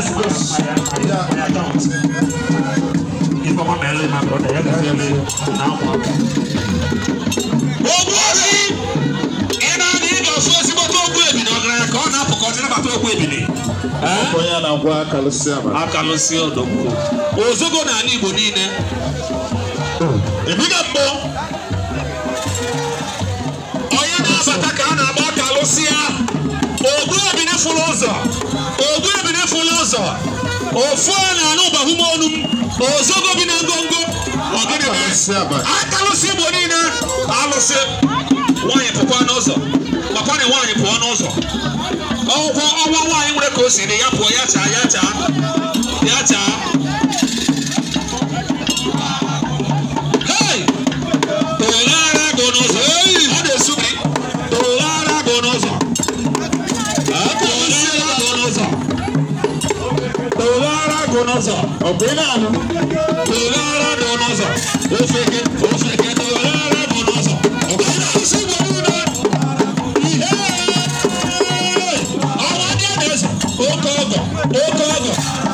I don't. You come on mẹ́rin my brother yẹ́n kẹ́sì mi kò náà wà. owó rí iná ní ìdọ̀sọ́ síbò tó gbé èbì ní ọ̀gá ẹ̀kọ́ náà pọ̀kọ́ tí nígbà tó gbé èbì ní. ọkọ ya na ngwa akalụsị ama. akalụsị ọdọgbu. ozugbo na ala Igbo niile. ebiga mbụ. ofana n'ọbahụm ọnụ ozogo bi na ngongo aka lụsị igbo niile alụsị nwaanyị pụkwa n'ụzọ makwana nwaanyị pụọ n'ụzọ ọgwụkwọ ọnwa nwaanyị nwere ka o si dị ya pụọ ya chaa ya chaa donaza ọ̀gbẹ́ni àná tòlá ara donaza ofeke o tòlá ara donaza ọ̀gbẹ́ni àná sí gbòòrò náà ìhẹ́ àwọn adé ẹ̀dẹ́sẹ̀ ó kọ́ ọ̀gọ̀ ó kọ́ ọ̀gọ̀.